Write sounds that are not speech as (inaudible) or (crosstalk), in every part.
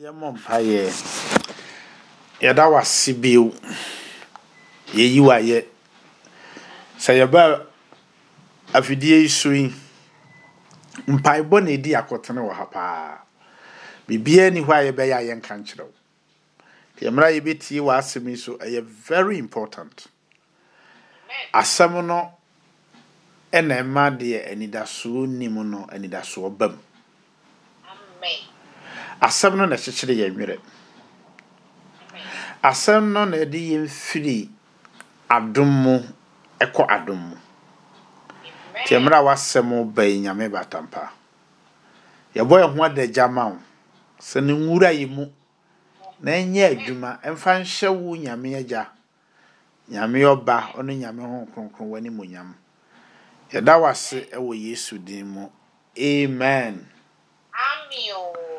Yɛmmɔ mpaeɛ. Yɛda wo ase bio. Yɛyi wo Sɛ yɛba afidie yi so yi, mpaebɔ na ɛdi akɔtene wɔ ha paa. Biribiara ni hɔ a yɛbɛyɛ a yɛnka nkyerɛ wo. Nti mmerɛ a yɛbɛtie w'asɛm yi so, ɛyɛ very important. Asɛm no ɛna ɛma deɛ anidasoɔ nim no, anidasoɔ ba mu. asɛm no na ɛkyekyere yɛn nwere asɛm no na ɛde yɛn firi adom mu ɛkɔ adom mu nti mmerɛ a wasɛm ba yi nyame batampa yɛbɔ yɛn ho adagya ma wo sɛ ne nwura yi mu na ɛnyɛ adwuma ɛmfa nhyɛ wo nyame agya nyame ɔba ɔne nyame ho kronkron w'animonyam yɛda wase ɛwɔ yesu din mu amen Amio.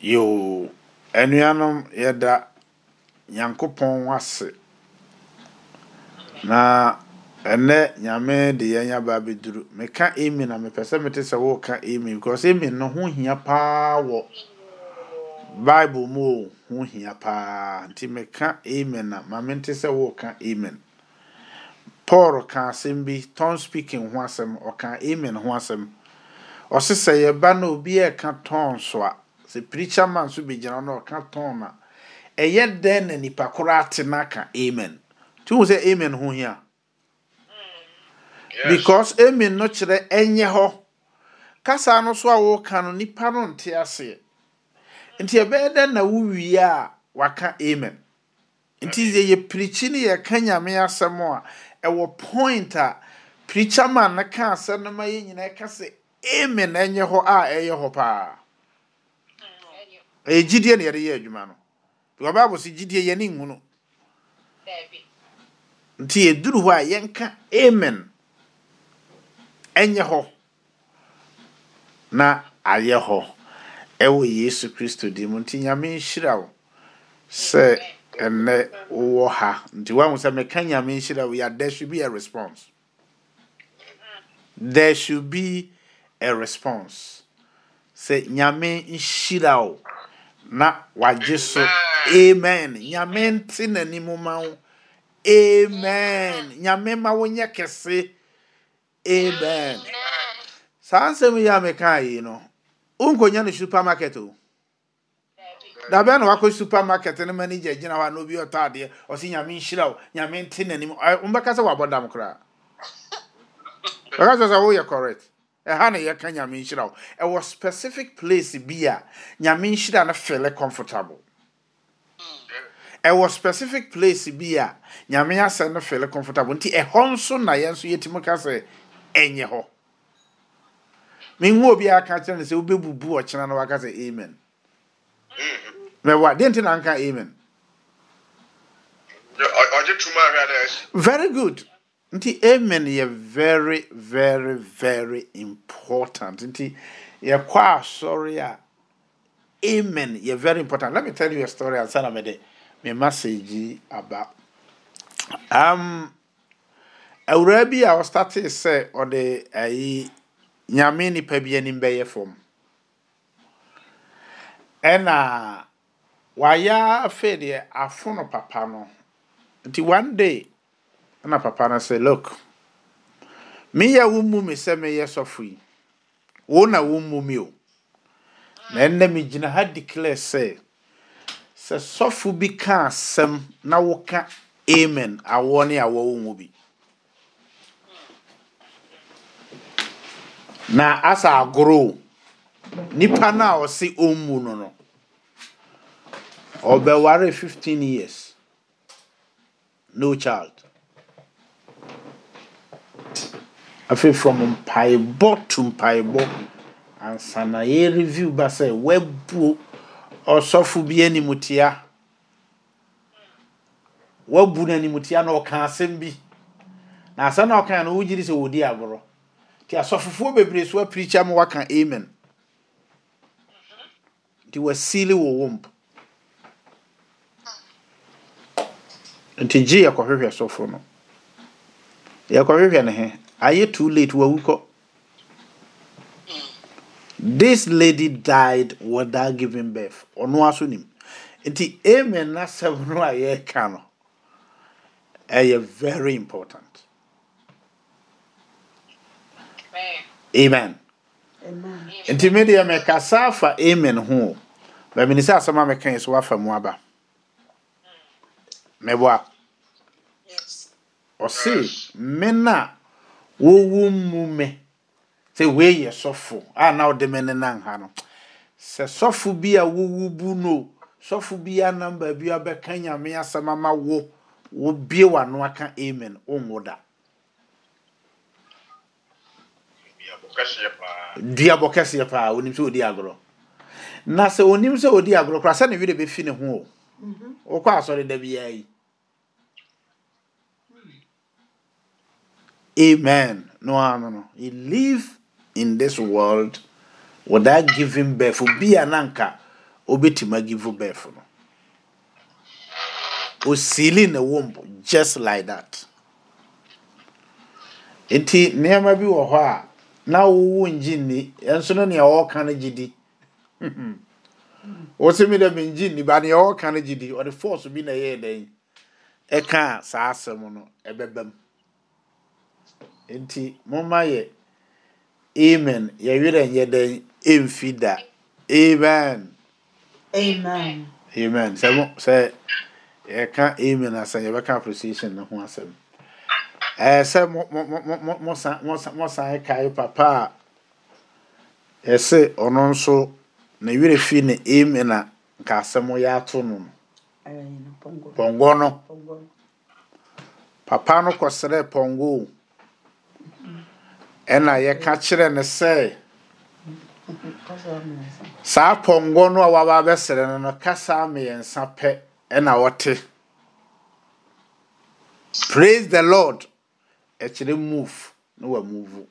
Yoo, anuanom yɛda Nyankopɔn ase na ɛnɛ Nyame de yɛn aba abɛduru. Meka amen a mepɛ sɛ mete sɛ wɔreka emi because emi no ho hia paa wɔ Bible mu o, ho hia paa nti meka amen a ma mente sɛ wɔreka amen. Paul ka asɛm bi tɔn speaking ho asɛm, ɔka amen ho asɛm. Ɔse sɛ yɛba na obi a ɛka tongue so a sɛ preacher man nso bɛgyina no ɔka tɔn na ɛyɛ dɛn na nipa koro ate na ka amen tí sɛ amen ho hia mm, because amen no kyerɛ ɛnyɛ hɔ kasa no so a wɔreka no nipa no nte aseɛ nti ɛbɛyɛ dɛn na wowie a waka amen nti mm. yɛ yɛ pirikyi ne yɛka nyame asɛm a ɛwɔ point a preacher man no ka asɛm no ma yɛ nyinaa ɛka sɛ amen ɛnyɛ hɔ a ɛyɛ hɔ paa. ɛyɛ eh, gyidie na yɛde yɛ adwuma no because bible sɛ gyidie yɛne nhu no nti yɛduru hɔ a yɛnka amen ɛnyɛ hɔ na ayɛ hɔ ɛwɔ yesu kristo di mu nti nyame nhyira wo sɛ ɛnɛ wowɔ ha nti woahu sɛ meka nyame nhyira wo yeah, there should be a response there should be a response sɛ nyame nhyira wo na wagye so amen nyame nte n'anim ma wo amen nyame ma wonyɛ kɛse amen saa nsɛm yi a mekaa yi no wonkɔnya no supermarket o dabɛ na wakɔ supermarket no ma no gya gyina hɔ a na obi ɔtɔ adeɛ ɔse nyame nhyira wo nyame nte n'anim wombɛka sɛ wabɔ dam koraa bɛka (laughs) sɛ sɛ woyɛ correct ɛha na yɛka nyame nhyira wo ɛwɔ specific place bi a nyame nhyira no fele comfortable ɛwɔ specific place bi a nyame asɛm no fele comfortable nti ɛhɔ nso na yɛn nso yɛtumi ka sɛ ɛnyɛ hɔ mehu obi aka kyerɛ no sɛ wobɛbubu ɔkyena no waka sɛ amen mɛwa deɛ nti na nka amen very good nti amen yɛ very very very important nti yɛkɔ asɔre a amen yɛ very important let me tell you a story ansa na mede me message yi aba um, awuraa bi a ɔstatee sɛ ɔde ayi nyame nnipa bi anim bɛyɛ fam ɛna wayɛ afei deɛ afono papa no nti one day ɛna papa no sɛ look meyɛ wommu me sɛ meyɛ sɔfo yi wo na wommu me o na ɛnnɛ megyina ha declare sɛ sɛ sɔfo bi ka asɛm na woka amen awoɔ ne awɔ wo mu bi na asa agoro nipa no a ɔse ɔmmu no no ɔbɛware 15 years no child afei from mpaebɔ to mpaebɔ ansa na yɛ review ba sɛ wabuo ɔsɔfo bi animtia wabu no animtia na ɔka asɛm bi na asɛm na ɔka no wogyiri sɛ wɔdi agorɔ nti asɔfofoɔ bebree so apirikya ma waka amen nti wasili wɔ womb nti gye yɛkɔhwehwɛ sɔfo no yɛkɔhwehwɛ ne he Are you too late wọ́n wúkọ́. this lady died without giving birth Ono asunim. nim nti amen n'asɛm (laughs) no a yɛreka no very important amen nti me deɛ mɛkasa afa amen ho baabi ne asama asɛm a mɛka yi so wafa mu aba mɛboa ɔse wowu mmume me sɛ wei yɛ sɔfo a na ɔde me ne nan ha no sɛ sɔfo bi a wowu bu no sɔfo bi a baabi abɛka nyame asɛm ama wo wobie w'ano aka amen wonwo da duabɔ kɛseɛ paa onim sɛ ɔdi agorɔ na sɛ onim sɛ ɔdi agorɔ sɛne werɛ bɛfi ne ho o mhm. wokɔ asɔre da biaa yi Amen. No, ah, no, no. He live in this world without giving birth. Obi ananka obetima give birth no. O in the womb just like that. eti nneɛma bi wɔ hɔ a na wowu ngye nni nso no nea gidi no mi dɛ mi ngye nni ba ni ɔreka no gye di (laughs) force bi na ɛyɛ dɛ ɛka saa asɛm no nti momma yɛ amen yɛwerɛ nyɛ dɛn ɛmfi da amen amen amen sɛ mo sɛ yɛka amen asa yɛbɛka appreciation ne ho asɛm ɛɛ eh, sɛ mo mo mo mo mo san mo san mo san kae papa a yɛsɛ ɔno nso ne werɛ fi ne amen a nka asɛm yɛ ato no no pɔnkɔ eh, no papa no kɔsrɛ pɔnkɔ o. ɛna yɛka kyerɛ no sɛ saa pɔnkɔ no a waba no no kasa mmiɛnsa pɛ ɛna wɔte praise the lord ɛkyerɛ move na move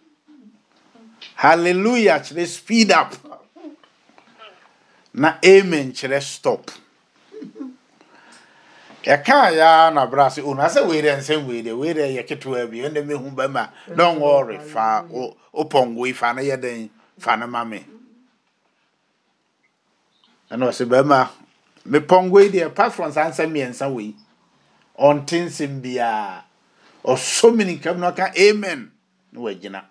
hallelujah kyerɛ speed up na amen kyerɛ stop. yɛka yɛa na berɛ oh, ase onu asɛ wei dɛ nsɛm wei deɛ wei dɛ yɛ ketewa bi ɛnɛ mehu bɛma don't worry fa wopɔngo yi fa no yɛ dɛn fa no ma me ɛna ɔsɛ bɛma mepɔngo yi deɛ apart from saa nsɛm mmiɛnsa wei ɔnte nsɛm biaa ɔsɔ me ninkam na ɔka amen na wagyina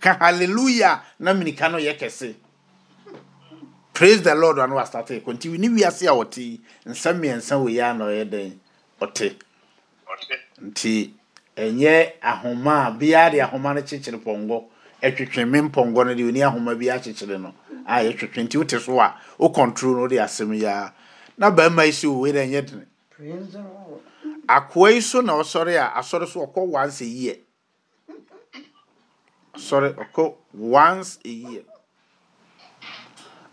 ɔka hallelujah na minika no yɛ kɛse praise the lord ano asate kɔ nti wi wiase a ɔte nsɛm mmiɛnsa wɔ yi a na ɔyɛ den ɔte nti ɛnyɛ ahoma a biara de ahoma no kyekyere pɔnkɔ ɛtwetwe me mpɔnkɔ no deɛ oni ahoma bi akyekyere no a yɛtwetwe nti wote so a o control no de asɛm yi a na barima yi si owei dɛ ɛnyɛ dene akoa yi so na ɔsɔre a asɔre so ɔkɔ once a year sɔre ɔkɔ once a year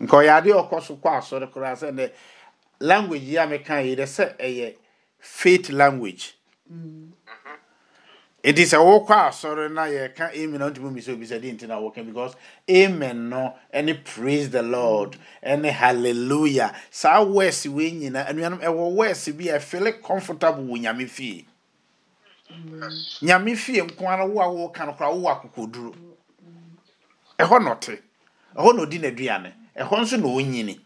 nka ɔyɛ adeɛ ɔkɔ so kɔ asɔre koraa sɛ na language yi a meka yi dɛ sɛ ɛyɛ faith language nti sɛ wokɔ asɔre na yɛka amen na wontumi obi obisa de nti na wɔka because amen no ɛne praise the lord ɛne mm-hmm. hallelujah saa words wee nyinaa anuanom ɛwɔ words bi a ɛfele comfortable wɔ nyame fie nyame fie nko ara wo a woka no koraa wowɔ akokoduro ɛhɔ na ɔte ɛhɔ na ɔdi n'aduane ɛhɔ nso na ɔnyini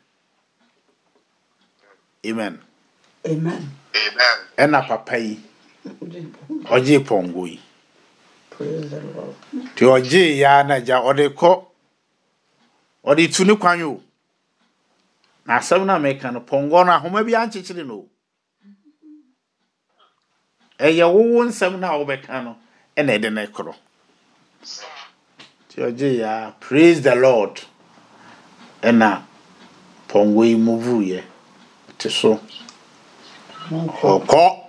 amen amen ɛna papa yi ɔgye pɔngo yi nti ɔgye ya na gya ɔde kɔ ɔde tu ne kwan o na asɛm no a meka no pɔngɔ no ahoma bi ankyekyere no ɛyɛ wowo nsɛm no a wobɛka no ɛna ɛde ne korɔ nti ɔgye ya praise the lord ɛna pɔnkɔ yi mu vuuɛ te so ɔkɔ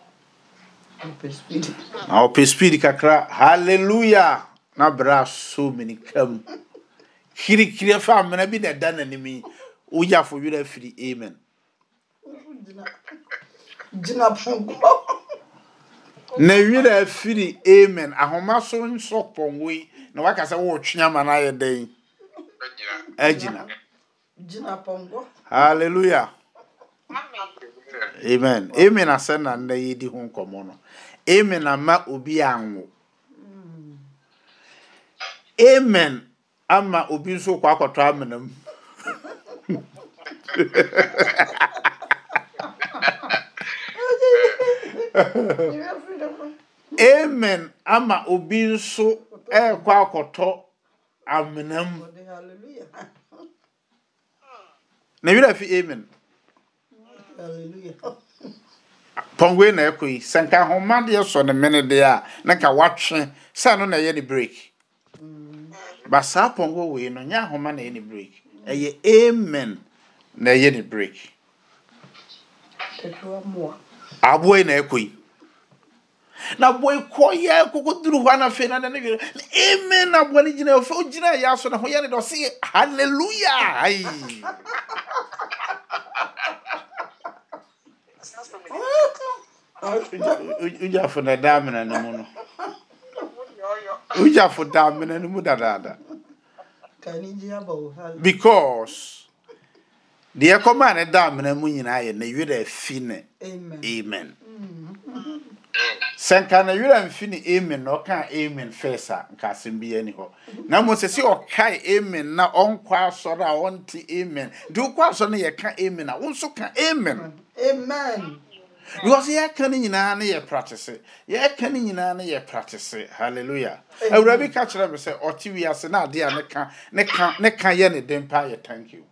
na ɔpɛ speed kakra hallelujah na bra so mini mu kirikiri afa amena bi na ɛda n'anim yi wogya afɔ afiri amen na werɛ afiri amen ahoma so nsɔ pɔnkɔ yi na wakasa wɔretwe ama no ayɛ dɛn agyina jina pongo haleluya amen eme na sɛ na nnɛ yɛdi ho nkɔmmɔ no eme na ma obi anwo amen ama obi nso kwa-akọtọ amịnị m. amen ama obi nso ɛrekɔ akọtọ amịnị m. na werɛ afi amen pɔnkɔ yi na ɛkɔ yi sɛ nka ahoma deɛ sɔ ne mene deɛ a na nka watwe sɛ no na ɛyɛ ne break mm. ba saa pɔnkɔ wei no nyɛ ahoma na ɛyɛ ne break ɛyɛ amen na ɛyɛ ne break aboa yi na ɛkɔ yi na aboa yi kɔ yɛ koko duru hɔ anafei na ne werɛ amen na aboa no gyina ɛfɛ ogyina ɛyɛ aso na ho yɛ ne dɛ ɔse hallelujah Uja fo na damina no mu no. Uja fo damina no mu dadaada. Because deɛ ɛkɔma ne damina mu nyinaa yɛ na werɛ afi ne amen. Sɛ nka na werɛ mfi ne amen na ɔka amen first a nka asɛm bi ani hɔ. Na mo sɛ sɛ ɔkae amen na ɔnkɔ asɔre a ɔnte amen. Nti wokɔ asɔre no yɛka amen a wo nso ka amen. amen. because yɛka no nyinaa no yɛ practice yɛka no nyinaa no yɛ practice hallelujah awura bi ka kyerɛ me sɛ ɔte wiase na adeɛ a ne ka ne ka ne ka yɛ ne den paa yɛ thank you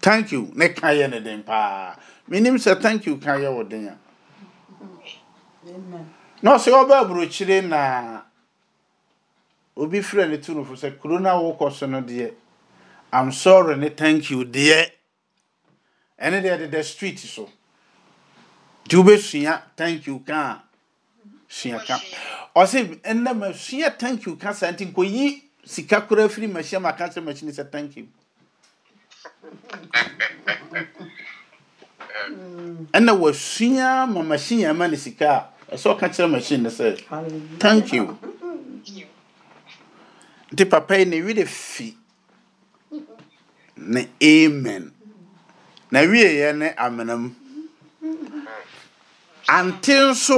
thank you ne ka yɛ ne den paa menim sɛ thank you ka yɛ wɔ den ya na ɔsɛ wɔbɛ aburokyire na obi frɛ ne to nofo sɛ kuro no a wokɔ so no deɛ i'm sorry ne thank you deɛ ɛne deɛ ɛdeda street so nti wobɛsua thank you ka a sua ka ɔse ɛnna masua thank you ka saa nti nkɔyi sika koraa firi mahyia ma aka kyerɛ makyini sɛ thank you ɛnna (laughs) wasua ma machine ama ne sika a ɛsɛ ɔka kyerɛ machine no sɛ thank you nti papa yi ne wi de fi ne amen na wieɛ ne amenam ante nso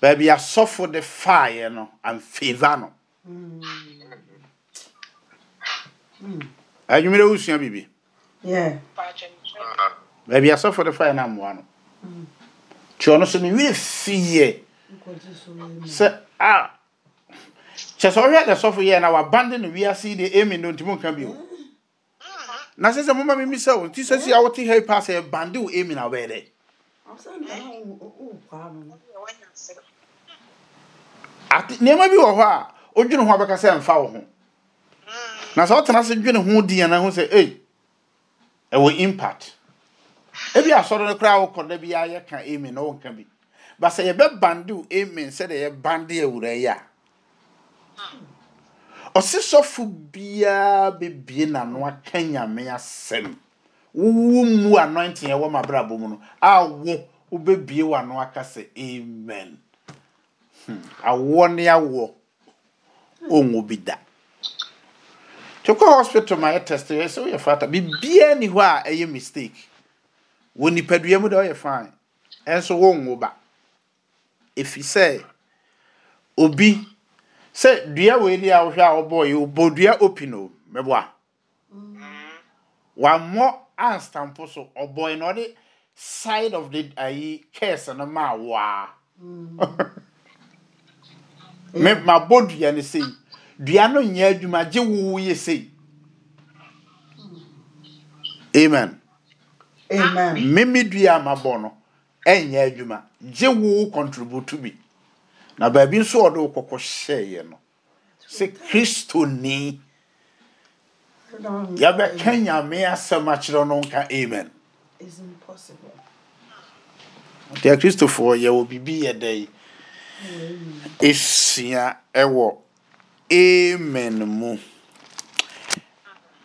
baabi asɔfo de faeɛ no amfeva no adwumerɛ wosua biribi baabi asɔfo de faeɛ no ammoa no nti ɔno so ne werɛ fiyɛ sɛ a kyɛ sɛ ɔhwɛ dɛ sɔfo yɛ na wabande no wiase yi deɛ ɛmi no ntimi nka bio na sɛ sɛ moma memisa wo nti sɛ si a wote hɛ pa sɛ bande wo ɛmi na wobɛɛ dɛ nneɛma bi wɔ hɔ a wodwene ho abɛka sɛ mfa wo ho na sɛ wotena se dwene ho diana ho sɛ ei ɛwɔ impact ebi asɔre no koraa wokɔ da biara yɛka amen na wonka bi ba sɛ yɛbɛbande wo amen sɛdeɛ yɛbande awura yi a ɔsi sɔfo biara bebie n'ano aka nyame asɛm wowu mu anointing ɛwɔ mu abrabɔ mu no awo wo wobebie w'ano aka sɛ amen hmm. awoɔ ne awoɔ ɔnwo bi da tokɔ hospital ma yɛ test yɛ sɛ woyɛ fata biribiara ni hɔ a ɛyɛ mistake wɔ nipadua mu da ɔyɛ fine ɛnso wɔnwo ba ɛfiri sɛ obi sɛ dua wei ni a wohwɛ a wɔbɔ yi wɔbɔ dua opin o mɛboa wammɔ anstampo so ɔbɔ yi na ɔde side of the ayi kɛɛse no maa waa mm. mɛ ma bɔ dua no sei dua no nyɛ adwuma gye wowu yɛ sei amen amen mimi dua a ma bɔ no ɛnyɛ adwuma gye wowu contribute to me na baabi nso ɔde wo hyɛeɛ no sɛ kristoni yɛbɛka nyame asɛm akyerɛ no nka amen deɛ kristofoɔ yɛwɔ biribi yɛ dɛ ɛsua ɛwɔ amen mu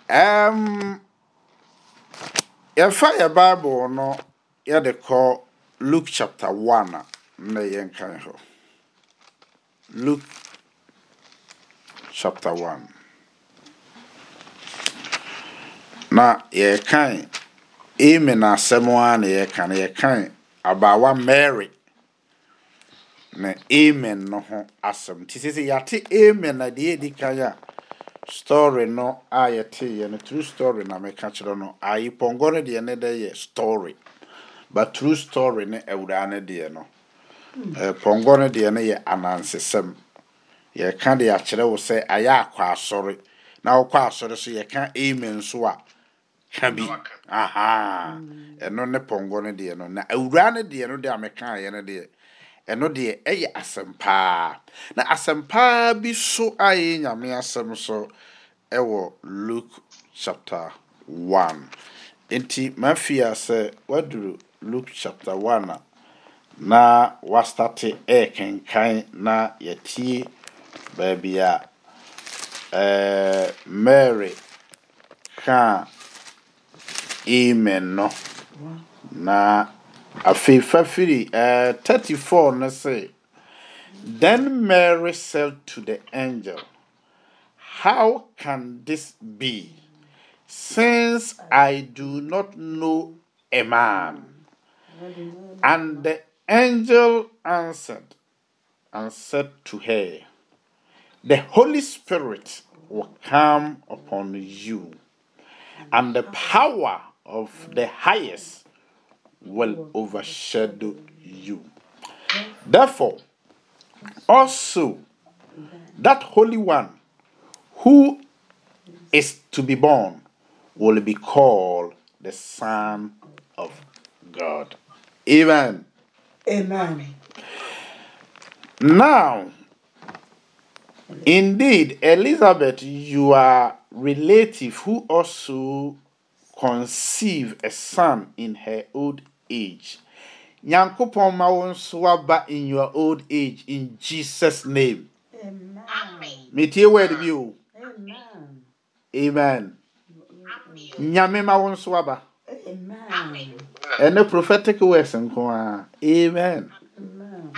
um, yɛfa yɛ bible no yɛde kɔ luke chapter 1 na yɛnkan hɔ Luke chapter 1. Na yɛrekan Amy na asɛm a na yɛreka no yɛkan abaawa Mary na Amen no ho asɛm nti sɛ yɛate Amen na deɛ yɛdi kan a story no a yɛteeɛ no true story na meka kyerɛ no ayepɔnkɔ no deɛ ne dɛ yɛ story but true story ne awuraa no deɛ no Eh, pɔnkɔ no deɛ no yɛ anansesɛm yɛka de akyerɛ wo sɛ ayɛ akɔ asɔre na wokɔ asɔre so yɛka amen nso a ka bi ɛno ne pɔnkɔ no deɛ no na awura no deɛ no deɛ a mekaeɛ no deɛ ɛno deɛ ɛyɛ asɛm paa na asɛm paa bi so ayɛ yɛ nyame asɛm so ɛwɔ luke chapter 1 nti mafia sɛ waduru luke chapter 1 a na wastate ɛrekenkan na yɛtie baabi a eh, mary kaa amen no na afei fafiri ɛɛ uh, eh, thirty four no say then mary said to the angel how can this be since i do not know a man and the angel answered and said to her, The Holy Spirit will come upon you, and the power of the highest will overshadow you. Therefore, also that Holy One who is to be born will be called the Son of God. Amen. Amen. Now, indeed, Elizabeth, you are relative who also conceive a son in her old age. Nyankopon ma in your old age in Jesus name. Amen. Metie word view. Amen. Amen. Nyame ma Amen. And the prophetic words in Amen. Amen. Amen.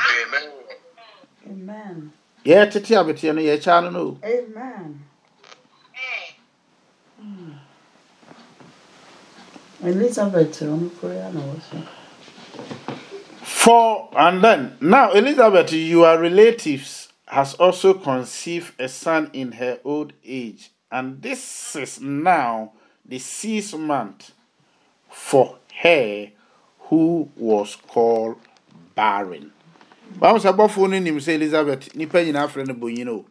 Amen. Yeah, Titi Abiti and your channel. No. Amen. Elizabeth, hmm. I'm prayer now. For and then now Elizabeth, your relatives has also conceived a son in her old age, and this is now the sixth month for Hey, who was called barren. Báwo sọ abọ́fo no nim Say, Elizabeth nipa nyinaa frɛ no bonyin o.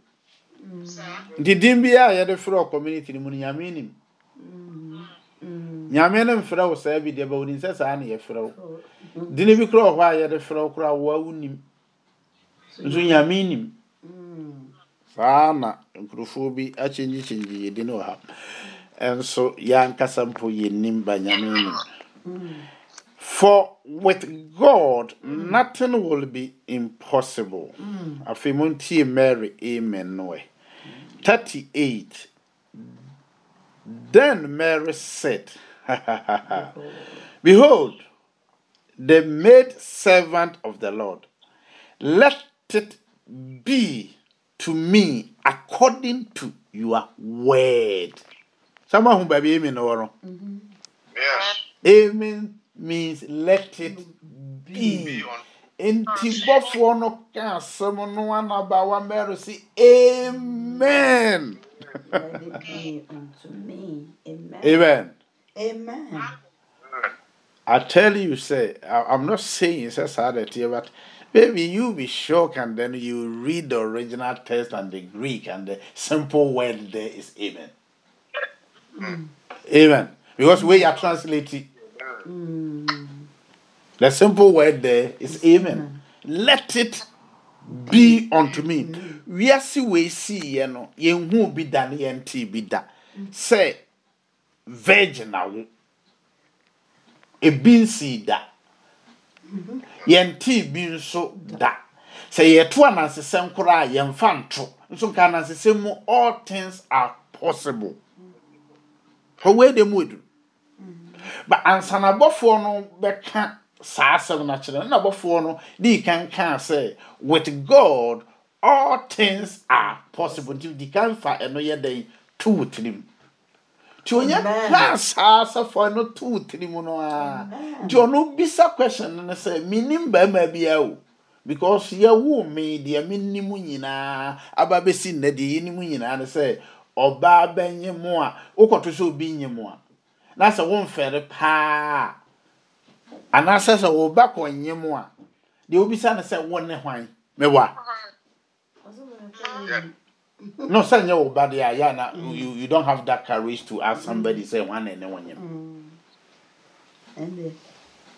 Nti din bi a yɛde frɛ community ni mu no nyame nim. Nyame no mfrɛ wo saa bi deɛ ba wonim sɛ saa na yɛfrɛ wo. Din bi kora wɔ hɔ a yɛde frɛ wo kora wo a wonim. Nso nyame nim. Saa na nkurɔfoɔ bi akyengyekyengye yɛ din wɔ ha. Nso yɛankasa mpo yɛnim ba nyame nim. For with God, mm. nothing will be impossible. Mm. Mary, amen. 38. Then Mary said, Behold, the maid servant of the Lord, let it be to me according to your word. Someone who baby me no Yes. Amen means let it be. Nti ah. bɔfoɔ no ka asɛm no anabawa mɛro si amen. amen. Amen. I tell you, say, I, am not saying it's a sad here, but maybe you be shocked and then you read the original text and the Greek and the simple word there is amen. Mm. Amen. Because we are translating Mm. The simple word there is amen. Let it be unto me. Wiase wei sii yɛ no yɛnhu bi da ne yɛnte bi da say virgin awo ebi nsii da mm-hmm. yɛnte bi nso da sɛ yɛto anansesɛm koraa yɛmfa nto So, nka anansesɛm mu all things are possible. Mm. Hɔ where de mu ba ansanabɔfoɔ no bɛka saa asɛm no akyerɛ no nabɔfoɔ no de kan kaa sɛ with god all things are possible nti di kan fa ɛno yɛ dɛn to wo tirim nti onyɛ kaa saa asɛfo ɛno to wo tirim no a nti ɔno bisa question no sɛ menim barima biara o because yɛwo me deɛ menim nyinaa aba bɛsi nnɛ deɛ yɛnim nyinaa no sɛ ɔbaa bɛnye mo a wokɔto sɛ obi nye mo a na sɛ womfɛre paa anaasɛ sɛ wɔba kɔnyɛ mu a deɛ wobisa no sɛ wo ne hwan mewɔ a no sɛ nyɛ wo ba deɛ a yɛ na you, you don't have that courage to ask somebody sɛ hwan ne ne wo nyɛ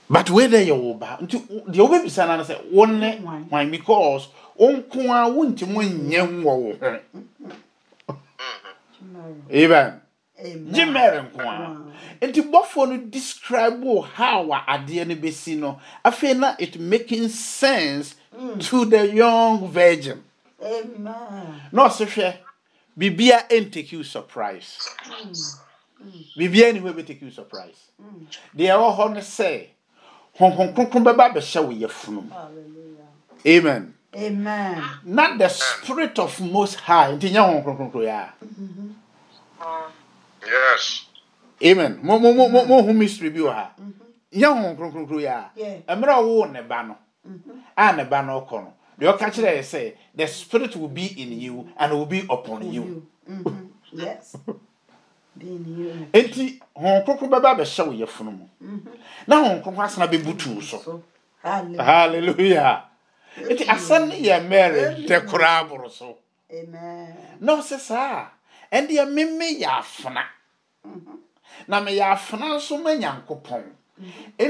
but wei dɛ yɛ wo ba nti deɛ wobɛbisa no no sɛ wo ne hwan because wo nko a wontimi nyɛ wɔ wo ho mm-hmm. amen gye mary nko a nti bɔfoɔ no describe how a adeɛ no bɛsi no afei na it making sense mm. to the young virgin na ɔse hwɛ biribia ɛntake you surprise mm. mm. biribia ni hɔ bɛtake you surprise mm. deɛ ɛwɔ hɔ no sɛ honhom kronkron bɛba abɛhyɛ wo yɛfunu mu amen Amen. Not the spirit of most high. Nti nyɛ Yes. Amen. Mo mo mo mo mm-hmm. mo hu mystery bi wɔ ha. Mm-hmm. Yɛ ho kronkronkro yɛ a. Mmerɛ a wɔwɔ ne ba no. Mm-hmm. A ne ba no ɔkɔ no. the spirit will be in you and will be upon you. Yes. Enti ho kronkro bɛba abɛhyɛ wo yɛfunu mu. Na ho kronkro asana bɛbutu so. Hallelujah. Iti asɛm no yɛ Mary dɛ koraa boro so. Na ɔsɛ saa ɛndeɛ meme yɛ afena. na meyɛ afena nso ma nyankopɔn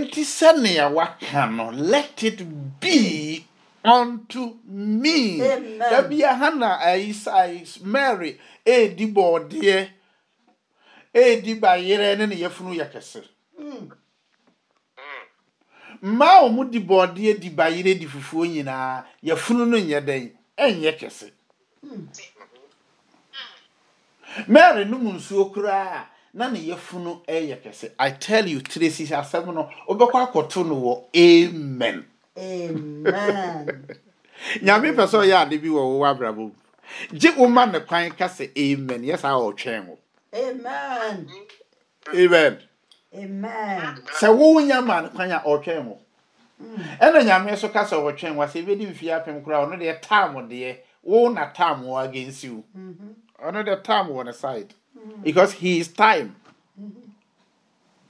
nti sɛnea waka no let it be unto me dabia hana aisais mary ɛɛdi bɔɔdeɛ ɛɛdi bayerɛ ne ne yɛfunu yɛ kɛse mmaa a wɔn di bɔɔdeɛ di bayerɛ di fufuo nyinaa yɛfunu no nyɛ dɛn ɛnyɛ kɛse hmm. mary no mu nsuo koraa na ne yafunu yɛ kɛse i tell you tire sisi asɛm no wobɛkɔ akɔto no wɔ amen (laughs) nyame pɛ sɛ ɔyɛ ade bi wɔ wo abrabɔ mu gye ne kwan ka sɛ amen yɛ saa ɔtwɛn wo amen amen sɛ wo wonya ma ne kwan a ɔtwɛn wo ɛna nyame nso ka sɛ ɔtwɛn wo asɛ ɛbɛdi mfie apem koraa ɔno deɛ tam deɛ wo na tam mhm. wɔ wo ɔno because He is time.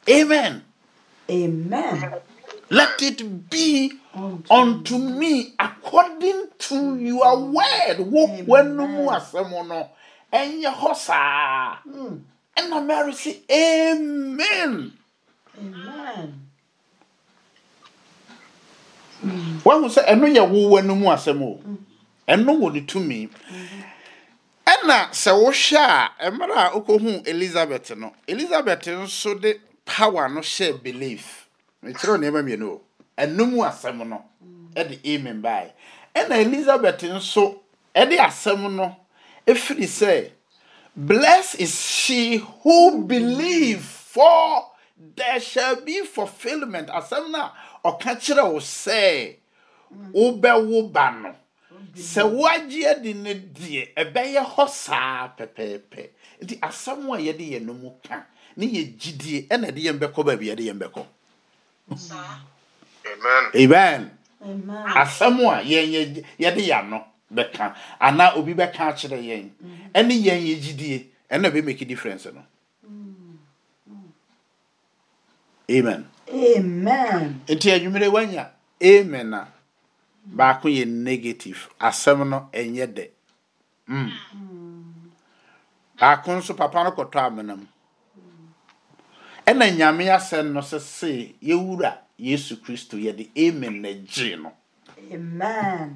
Amen. Amen. Let it be unto me according to your word. When asɛm no ɛnyɛ hɔ hmm. and Ɛna Mary say, Amen. Amen. Wahu sɛ ɛno yɛ wowa no mu asɛm hmm. o. Ɛno and ne tumi. mm mm-hmm. me. ɛna sɛ wohwɛ a mmerɛ a wokɔhu elizabeth no elizabeth nso de power no hyɛ belief mekyerɛ nneɛma mmienu o ɛnom asɛm no ɛde amen bae ɛna elizabeth nso ɛde asɛm no ɛfiri sɛ bless is she who believe for there shall be fulfilment asɛm no a ɔka kyerɛ wo sɛ wobɛwo ba no sɛ woagyeɛ de ne deɛ ɛbɛyɛ hɔ saa pɛpɛɛpɛ nti asɛm a yɛde yɛ no mu ka ne yɛ gyidie ɛna ɛde yɛn bɛkɔ baabi yɛde yɛn bɛkɔ amen asɛm a yɛn yɛde yɛ ano bɛka anaa obi bɛka akyerɛ yɛn mm. ɛne yɛn yɛ gyidie ɛna ɛbɛ make difference no mm. Mm. amen amen nti adwumire wanya amen a. baako yɛ negative asɛm no ɛnyɛ dɛ mm. baako nso papa no kɔtɔ amena mu ɛna nyame asɛm no sese yɛwura yesu kristo yɛde amen na gyee no mm.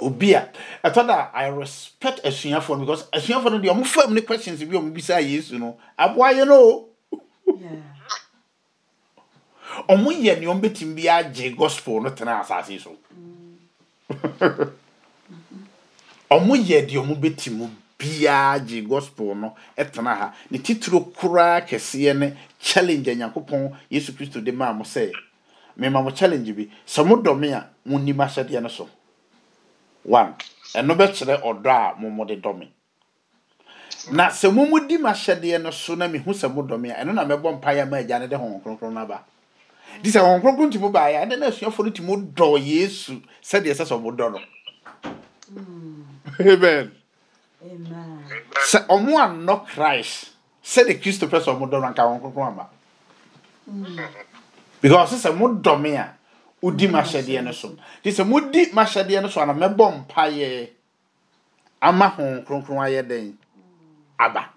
obi a ɛtɔ da i respect asuafoɔ no because asuafoɔ no deɛ ɔmo fam ne questions bi a ɔmo bisa yesu no aboa yɛ no o. Yeah. ɔmo yɛ nea ɔmo bɛtumi bi agye gospel no tena asase so ɔmo yɛ deɛ ɔmo bɛtumi biara gye gospel no e tena ha ne titiro koraa kɛseɛ ne challenge a yesu kristo de maa mo sɛ mema mo challenge bi sɛ mo dɔme a mo nim ahyɛdeɛ no so one ɛno bɛkyerɛ ɔdɔ a mo mo de dɔme na sɛ mo mo di mo ahyɛdeɛ no so na mehu sɛ mo dɔme a ɛno na mɛbɔ mpaeɛ ma agya e ne de honhom kronkron no aba nti sɛ wɔn kronkron tumi baayɛ adan na asuafoɔ no tumi dɔ yesu sɛdeɛ ɛsɛ sɛ wɔn dɔ no amen sɛ wɔn anɔ christ sɛdeɛ kristo pɛ sɛ wɔn dɔ no anka wɔn kronkron ama because sɛ mo dɔ me ah. hmm. a wodi m'ahyɛdeɛ no so nti sɛ modi m'ahyɛdeɛ no so ana mɛbɔ mpaeɛ ama ho kronkron ayɛ den aba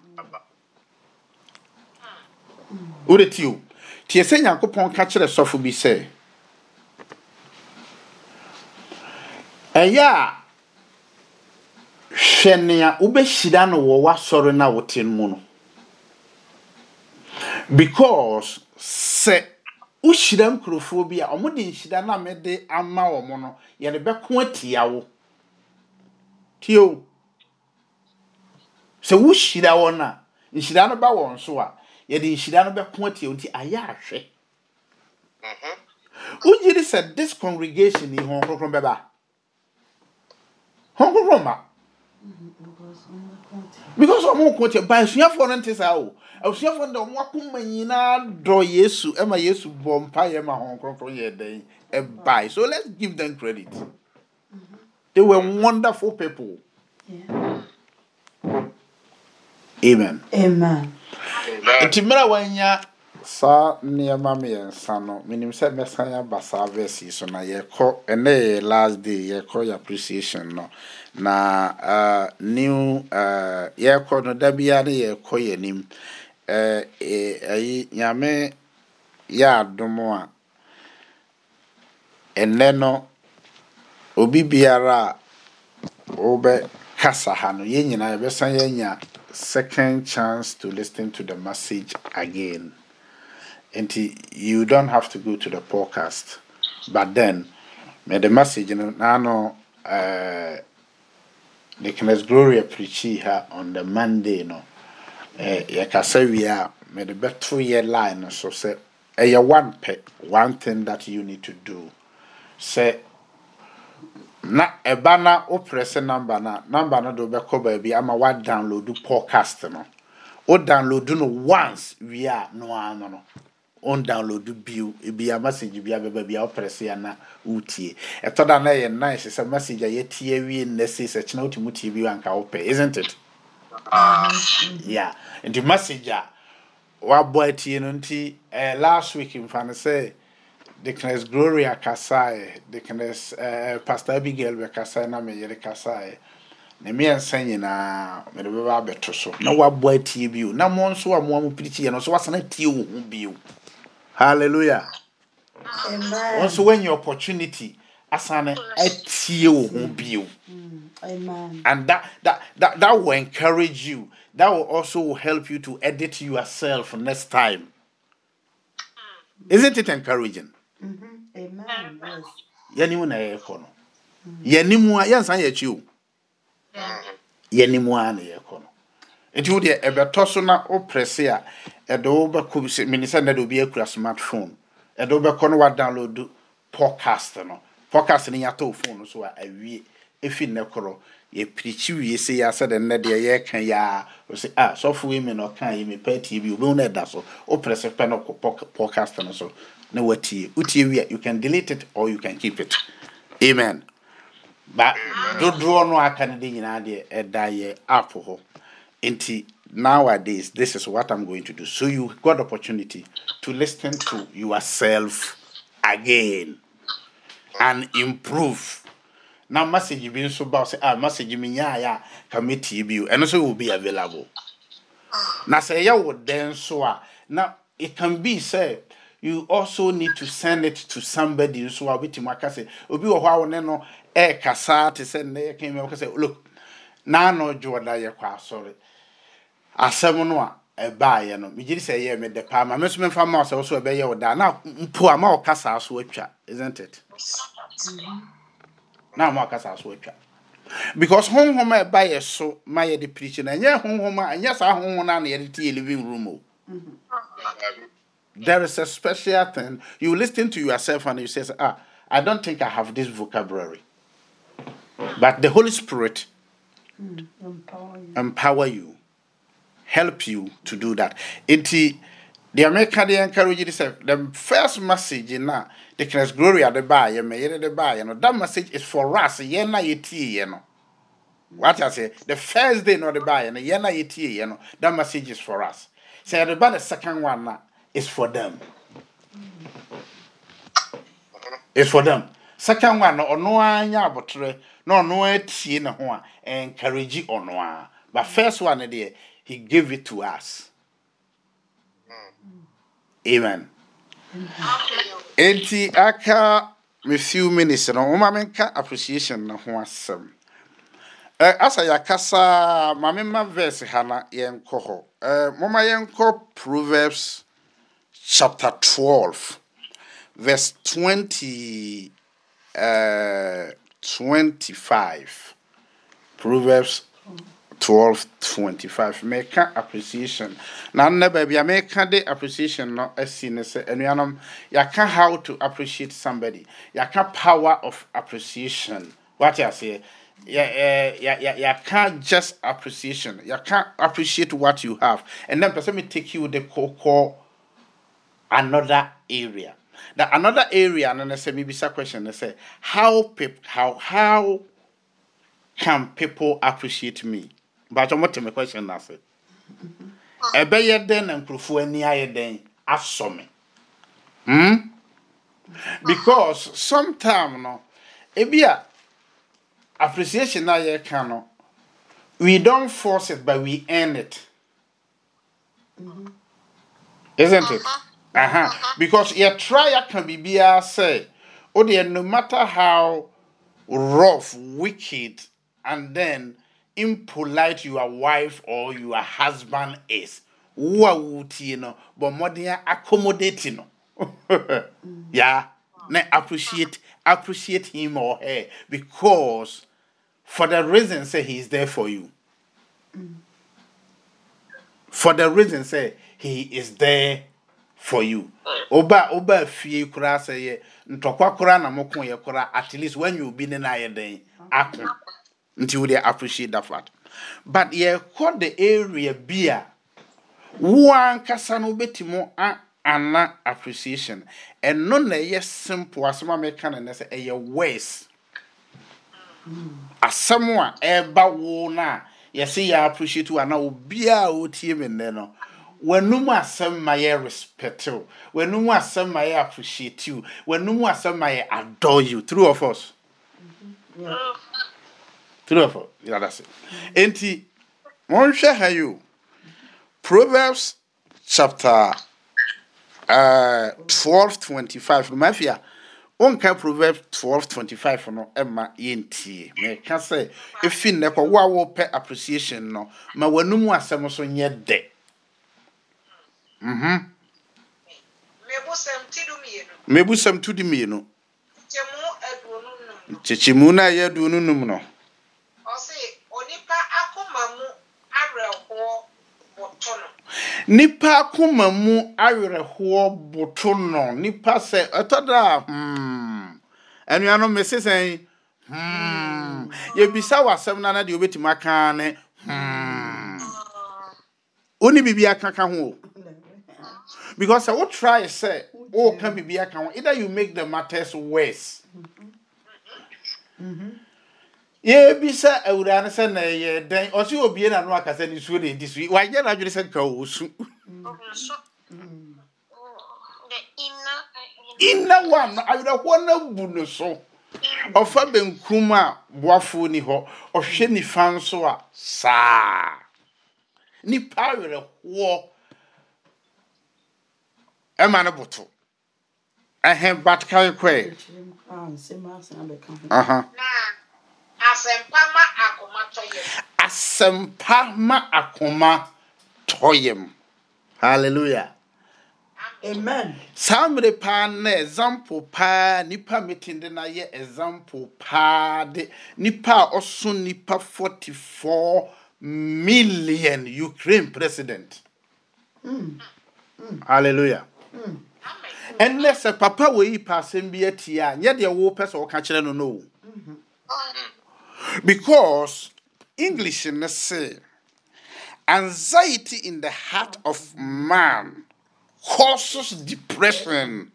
wode ti o. tie sɛ nyankopɔn ka kyerɛ sɔfo bi sɛ ɛyɛ a hwɛ nea wobɛhyira no wɔ w'asɔre na wote mu no because sɛ wohyira nkurɔfoɔ bi a ɔmode nhyira no a mede ama wɔ mo no yɛde bɛko atia wo tio sɛ wohyira wɔn a nhyira no ba wɔn so a yɛde nhyira no bɛko atia nti ayɛ ahwɛ mm-hmm. wogye di sɛ this congregation yi hɔn kronkron bɛba hɔn kronkron ma because ɔmo nko atia ba asuafoɔ no nte saa o asuafoɔ no deɛ ɔmo akoma nyinaa dɔ yesu ɛma yesu bɔ mpa yɛ ma hɔn kronkron yɛ dɛn ɛbae so let's give them credit they were wonderful people yeah. amen amen nti mmerɛ a wanya saa nneɛma mmiɛnsa no menim sɛ mɛsan aba saa verse so na yɛkɔ ɛnɛ yɛ last day yɛkɔ yɛ appreciation no na uh, new uh, yɛkɔ no da biara ne yɛkɔ yɛnim ɛyi uh, eh, eh nyame yɛ adom a ɛnɛ no obi biara a wobɛkasa ha no yɛn nyinaa yɛbɛsan yɛanya second chance to listen to the message again. And you don't have to go to the podcast. But then, may the message, you know, uh, eh, Deaconess Gloria preached her on the Monday, you know. we are a the bɛto year line so say, eh, ɛyɛ one pɛ one thing that you need to do say. na ɛba na wopere se namba na namba no de wobɛkɔ baabi ama wadownload podcast no wo download no once wie a no ara no no on download bio ebia message bia bɛba bia wopere se a na wotie ɛtɔ da na ɛyɛ nice sɛ message a yɛtie wie nnɛ sei sɛ kyena wotumi tie bi anka wopɛ isn't it ya nti message a wabɔ atie no nti eh, last week mfa no sɛ Deaconess Gloria kasae Deaconess uh, Pastor Abigail bɛkasae na meyere kasae ne mmiɛnsa nyinaa mede bɛba abɛto so na woabɔ atie bio na mo nso a moa mo pirikyiɛ no so woasane atie wo ho bio halleluya wo nso woanya opportunity asane atie wo ho bio mm. And that, that that that will encourage you. That will also help you to edit yourself next time. Isn't it encouraging? Mm-hmm. yɛnim na yɛrekɔ no yɛnim a yɛnsan yɛakyi o yɛnim a na yɛrekɔ no nti wo deɛ ɛbɛtɔ so na woprɛ se a ɛde wo bɛkɔ mene sɛ nnɛ de obi akura smartphone ɛde wo bɛkɔ no wadownload podcast no podcast no yɛatɔ wo phone no so a awie ɛfi nnɛ korɔ yɛpirikyi wie se yɛ sɛ de nnɛ deɛ yɛreka yɛ a ɔsɛ a ah, sɔfo yi mi na ɔka yi mi pɛ tie bi obi na ɛda so woprɛ se pɛ no podcast no so na watie wotie wie you can delete it or you can keep it amen ba dodoɔ no aka no de nyinaa deɛ ɛda yɛ app hɔ nti nowadays this is what i'm going to do so you got opportunity to listen to yourself again and improve na message bi nso ba sɛ ah message mi nya ya ka metie bi ɛno nso will be available na say ɛyɛ wo dɛn so a na it can be said you also need to send it to somebody nso a wobɛtumi aka sɛ obi wɔ hɔ a wo ne no ɛɛkasa te sɛ nnɛ yɛka mi wɔka sɛ look naana ɔgye wɔ da yɛkɔ asɔre asɛm no a ɛbaayɛ no megye di sɛ ɛyɛ me dɛ paa ma me nso memfa ma wo sɛ wo so ɛbɛyɛ wo daa na mpo a ma wɔka saa so atwa isn't it na ma wɔka saa so atwa eh, because home home a ɛba yɛ so ma yɛde pirikyi no ɛnyɛ honhom a home saa honhom no a na yɛde te living room o oh. mm-hmm. (laughs) There is a special thing. You listen to yourself and you say, Ah, I don't think I have this vocabulary. But the Holy Spirit hmm. empower, you. empower you, help you to do that. It the American they encourage you the first message in that the Christ glory at the bar, you may the bar, you know. That message is for us, You yeti, you know. What I say, the first day no the bar, you know, yena yeti, you know, that message is for us. Say so, the second one now is for them. It's for them. Mm-hmm. Second one, ɔno uh, no one, yeah, but no no it's ne ho a encourage on one, But first one eh, deɛ he gave it to us. Mm. Amen. Mm-hmm. Enti aka me few minutes no my maame nka appreciation ne ho some. As eh, asa yɛakasa my ma verse Hannah, na yɛnkɔ Uh, eh, Ɛ mɔma yɛnkɔ proverbs chapter 12, verse 20, uh, 25. Proverbs 12, 25. Make appreciation. Now, never be a make the appreciation not a sin. And you know, you can how to appreciate somebody. You can power of appreciation. What I say? yeah, yeah, yeah, yeah, can't just appreciation. You can't appreciate what you have. And then let me take you the cocoa another area. Now another area, and then I say maybe a question. I say how peop- how how can people appreciate me? But I'm not my question. I say. Ah. ɛbɛyɛ dɛn na nkurɔfoɔ ani ayɛ dɛn After me hmm? Ah. because sometimes, no ebi a appreciation na yɛka no we don't force it but we earn it mm-hmm. isn't it. Uh-huh huh. because yɛ try be be sɛ Oh dear! no matter how rough wicked and then impolite your wife or your husband is wo a wotie no bɔ mmɔden you know. (laughs) yeah na appreciate appreciate him or her because for the reason say he is there for you mm. for the reason say he is there for you. Mm. Oba oba fie kura sɛ yɛ ntɔkwa kura na moko yɛ kura at least when you be ne na yɛ den ako nti wo de appreciate that fact. But yɛ kɔ the area bi a wo ankasa no wobɛtumi a ana appreciation ɛno na ɛyɛ simple asɛm a mɛka na nɛ sɛ ɛyɛ wɛs mm. asɛm a ɛba wo no a yɛse yɛ appreciate wo anaa obiaa a wɔtie me nnɛ no wɔnum asɛm ma yɛ respect o wɔnum asɛm ma yɛ appreciate o wɔnum asɛm ma yɛ adore you true of us. mm -hmm. yeah. true or false yàrá se nti wọn hwɛ ha yi o proverbs chapter uh, twelve twenty five no mafia wonka proverbs twelve twenty five no ma yɛntie mɛka sɛ efi nnɛ kɔ wo a wɔpɛ appreciation no ma wɔnum asɛm so nyɛ dɛ mmebusɛm mm-hmm. tu di mmienu nkyekyimu no a ɛyɛ aduonu num no nipa akoma mu awerɛhoɔ boto no nipa sɛ ɛtɔ da a hmm. anuanom mese sɛn hmm. yɛbisa wɔ asɛm no ana deɛ wobɛtumi aka ne hmm. ah. wone biribi akaka ho o because I will try say, oh, can be account. Either you make the matters worse. Mm-hmm. Mm-hmm. yɛbi sɛ I would sɛ na ɛyɛ dɛn ɔsɛ obie na no akasa ne suo na ɛdi so wayɛ n'adwene sɛ nka ɔwɔ su inna wa no awerɛhoɔ no abu no so ɔfa benkum mm-hmm. a boafoɔ ni hɔ ɔhwɛ nifa nso a ah, saa nipa awerɛhoɔ have but carry ɛhe Uh huh. Asempa ma akoma tɔyɛm Hallelujah. Amen. saa mmere paa na example pa nipa meeting de na ye example paa de nipa osu nipa forty four million ukraine president mm. Mm. hallelujah ɛnnɛ hmm. sɛ papa wei pass asɛm bi atie a nyɛ deɛ wopɛ sɛ wɔka kyerɛ no no because english no se anxiety in the heart of man causes depression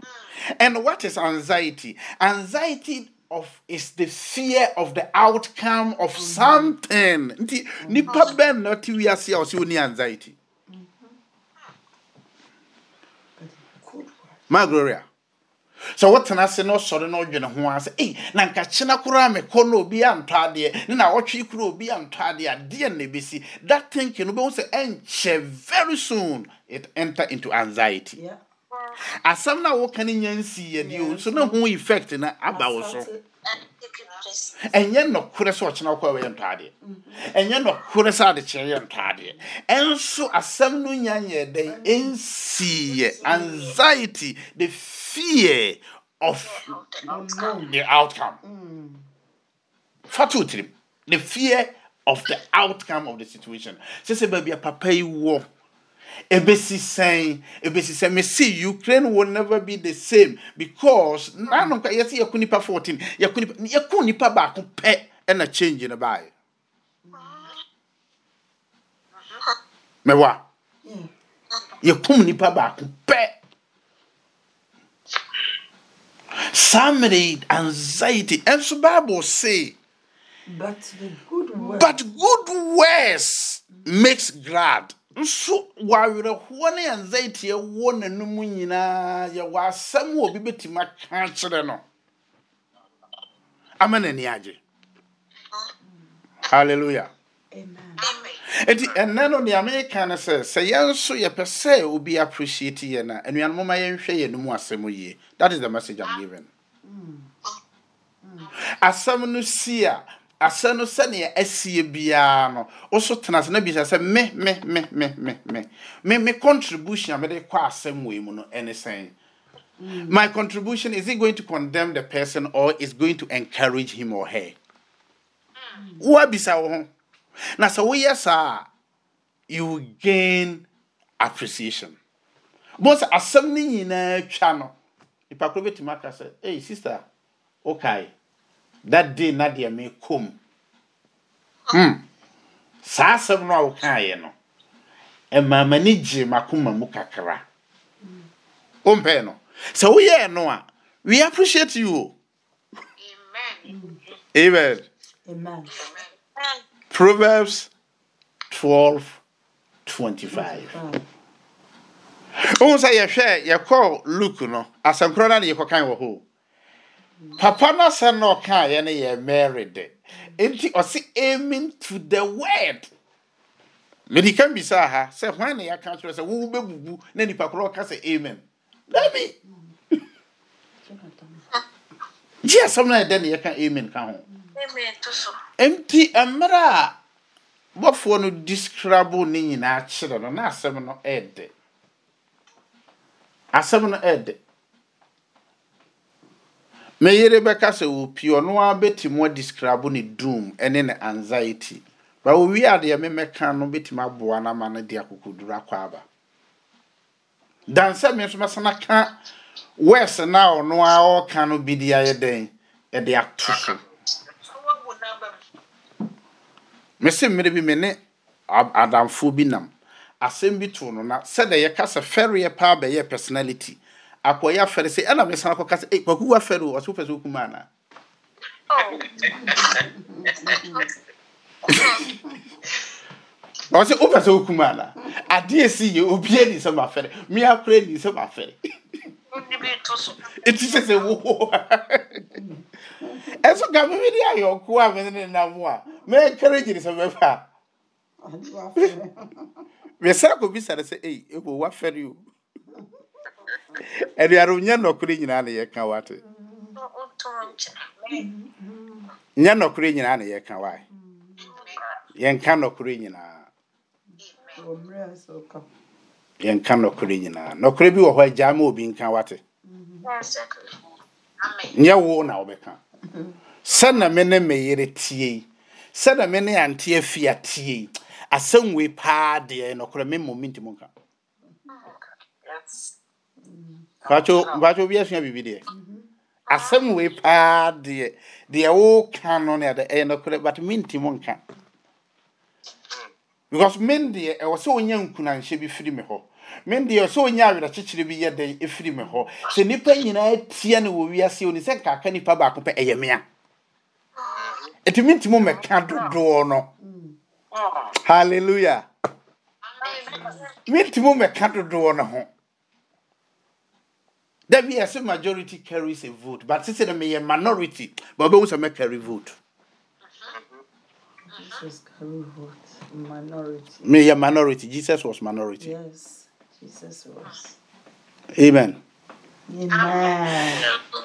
mm. and what is anxiety anxiety of is the fear of the outcome of mm-hmm. something nti nipa bɛn na ɔte wiase a anxiety ma gloria sɛ wotena ase na ɔsɔre na ɔdwene ho ase ei na nka kyena koraa mekɔ na obi antɔ adeɛ ne na ɔtwe kora obi antɔ adeɛ adeɛ na ɛbɛsi that thinking wobɛhu sɛ ɛnkyɛ very soon it enter into anxiety yeah. asɛm no a woka no nya nsii adeɛ o nso ne ho effect na aba wo so ɛnyɛ nɔkorɛ sɛ ɔkyena wokɔ a wɔyɛ ntɔadeɛ ɛnyɛ nɔkorɛ sɛ adekyeɛ yɛ ntɔadeɛ ɛnso asɛm no nya yɛ dɛn ɛnsiiɛ anxiety the fear of the outcome fa to tirim the fear of the outcome of the situation sɛ sɛ baabi a papa yi wɔ ebesi sɛn ebesi sɛn see ukraine will never be the same because nanom ka yɛsi yɛko nipa fourteen yɛko nipa yɛko nipa baako pɛ ɛna change ne baa yɛ mɛwa yɛkum nipa baako pɛ saa mmere anxiety ɛnso bible say but good words, but good words makes glad. nso wawerɛhoɔ ne anxiety ɛwɔ n'anom nyinaa yɛwɔ asɛm wɔ obi bɛtumi aka kyerɛ no ama n'ani agye halleluya nti ɛnɛ no nea meka no sɛ sɛ yɛn nso yɛpɛ sɛ obi appreciate yɛ no a anuanom ma yɛnhwɛ yɛn mu asɛm yie that is the message i'm giving mm. asɛm no si a asɛ no sɛnea asie biara no woso tena ase na bisa sɛ me me me me me me me me contribution a mede kɔ asɛm wei mu no ɛne sɛn mm. my contribution is it going to condemn the person or is going to encourage him or her mm. woabisa wo ho na sɛ woyɛ saa you gain appreciation bɔn sɛ asɛm no nyinaa twa no nipa koro bɛtumi aka sɛ ei sister wokae okay that day na deɛ mekɔ mu hmm. saa asɛm no a wokaeɛ no ɛmaamani gye makoma mu kakra wompɛɛ no sɛ woyɛɛ no a we appreciate you Amen. amen proverbs 12 25 wohu sɛ yɛhwɛ yɛkɔɔ luke no asɛmkorɔ no ne yɛkɔkan wɔ hɔ papa no asɛm na ɔkaeɛ no yɛ mary de nti ɔse amen to the word mede ka mbisaa ha sɛ hwan na yɛaka kyerɛ sɛ wowo bɛbubu na nipa korɔ ɔka sɛ amen dabi gye asɛm no ɛdɛ ne yɛka amen ka ho nti mmerɛ a bɔfoɔ no discrable ne nyinaa kyerɛ no na asɛm no ɛɛdɛ asɛm no ɛɛdɛ me yere bɛka sɛ ɔpi ɔno ara bɛtumi adescribe ne doom ne ne anxiety ba owie adeɛ memɛka no bɛtumi aboa no ama no de akokoduru akɔ aba dan sɛ me nso mɛsana ka wes na ɔno a ɔka no bi de ayɛ dɛn ɛde ato so mese mmerɛ bi me ne adamfoɔ bi nam asɛm bi too no na sɛdeɛ yɛka sɛ fɛreɛ paa bɛyɛ personality akɔyɛ afɛre sɛ ɛna mesan akɔka sɛ ei kwaku wafɛre o ɔso wopɛ sɛ wokum anaa oh. ɔ sɛ wopɛ sɛ wokum anaa adeɛ si yɛ obia ni sɛ mafɛre mmea kora ni sɛ mafɛre ɛti sɛ sɛ woho ɛso ka meme de ayɔko a mene ne nam a mɛkɛre gyere sɛ mɛfa a mesɛ kɔbisare sɛ ei ɛbo wafɛre o aduane nyɛ nnɔkore nyinaa na yɛka wa te nyɛ nnɔkore nyinaa na yɛka wa yɛnka nnɔkore nyinaa yɛnka nnɔkore nyinaa nnɔkore bi wɔ hɔ agyaa ma obi nka te nyɛ wo na wobɛka sɛna me ne me yere tie yi sɛna me ne ante afia tie yi asɛmwe paa deɛ nnɔkorɛ me mmɔ mentimo nka Yes. mpatwo ah. obi asua biribi deɛ mm-hmm. asɛm ah. wei paa deɛ deɛ woka no ne ade ɛyɛ e nokorɛ but menti mo nka mm. because men deɛ ɛwɔ e sɛ wonya nkunanhyɛ bi firi me hɔ men deɛ sɛ e wonya awerɛkyekyere bi yɛ dɛn ɛfiri me hɔ sɛ nnipa nyinaa tia no wɔ wiase oni sɛ nkaka nnipa baako pɛ ɛyɛ mea ɛti mm-hmm. menti mo mɛka ah. dodoɔ no mm. halleluya menti mo mɛka dodoɔ no ho that we as a majority carries a vote, but since they may a minority, but we also carry vote. Jesus carry vote, minority. May a minority. Jesus was minority. Yes, Jesus was. Amen.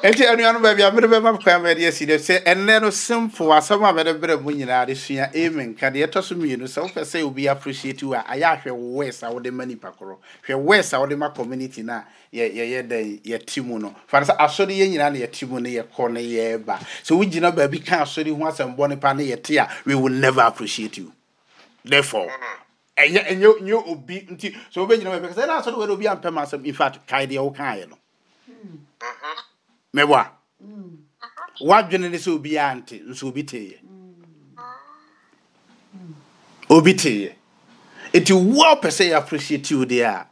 nti anuanom baabi a mede bɛma kwa mɛde asi dɛ sɛ ɛnnɛ no simple asɛm a mɛde berɛ mu nyinaa de sua amen ka deɛ ɛtɔ so mmienu sɛ wopɛ sɛ obi appreciate wo a ayɛ ahwɛ wes a wode ma nipa korɔ hwɛ wes a wode ma community no a yɛyɛ dɛn yɛte mu no fa no sɛ asɔre yɛ nyinaa na yɛte mu no yɛkɔ no yɛɛba sɛ wogyina baabi ka asɔre ho asɛmbɔ nipa no yɛte a we will never appreciate you therefore mm. ɛnyɛ ɛnyɛ obi nti sɛ wobɛgyina baabi ka sɛ ɛna asɔre wɛde obi ampɛ ma asɛm infact kae deɛ wokaeɛ no mɛwa mm-hmm. mm-hmm. wadwene ne sɛ obiaa nte nso obi teeɛ mm-hmm. obi teeɛ nti woa wopɛ sɛ yɛapreciate wo deɛ a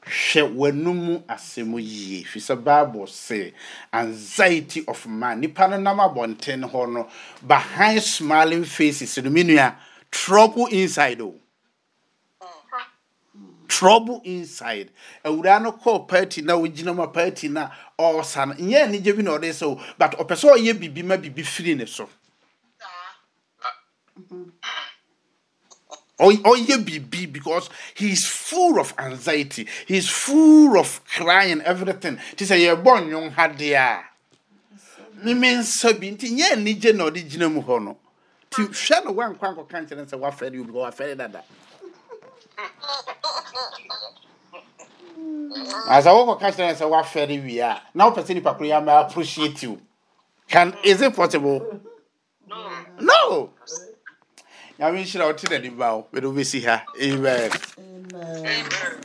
hwɛ w'ano mu asɛm yie firi sɛ bible se anxiety of man nipa no nam abɔnten hɔ no behind smiling faces no me nua trouble inside o oh trouble inside awura no kɔɔ party na ogyina mu a party na ɔresa no nyɛ anigye bi na ɔde sɛ o but ɔpɛ sɛ ɔyɛ bibi ma bibi firi ne so ɔyɛ bibi because he is full of anxiety he is full of crying everything ti sɛ yɛbɔ nnwom ha deɛ a meme nsa bi nti nyɛ anigye na ɔde gyina mu hɔ no nti hwɛ no woankɔ ankɔka nkyerɛ sɛ woafɛre obi hɔ wafɛre dada Mm. As I walk across the say, what ferry we are. Now, person, if I appreciate you. Can, is it possible? No. No! I mean, she'll tell you about when we see her. Amen. Amen. Amen.